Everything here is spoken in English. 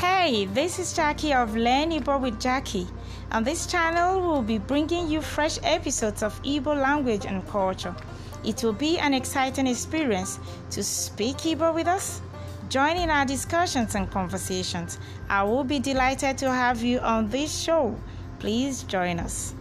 Hey, this is Jackie of Learn Igbo with Jackie. On this channel, will be bringing you fresh episodes of Igbo language and culture. It will be an exciting experience to speak Igbo with us. Join in our discussions and conversations. I will be delighted to have you on this show. Please join us.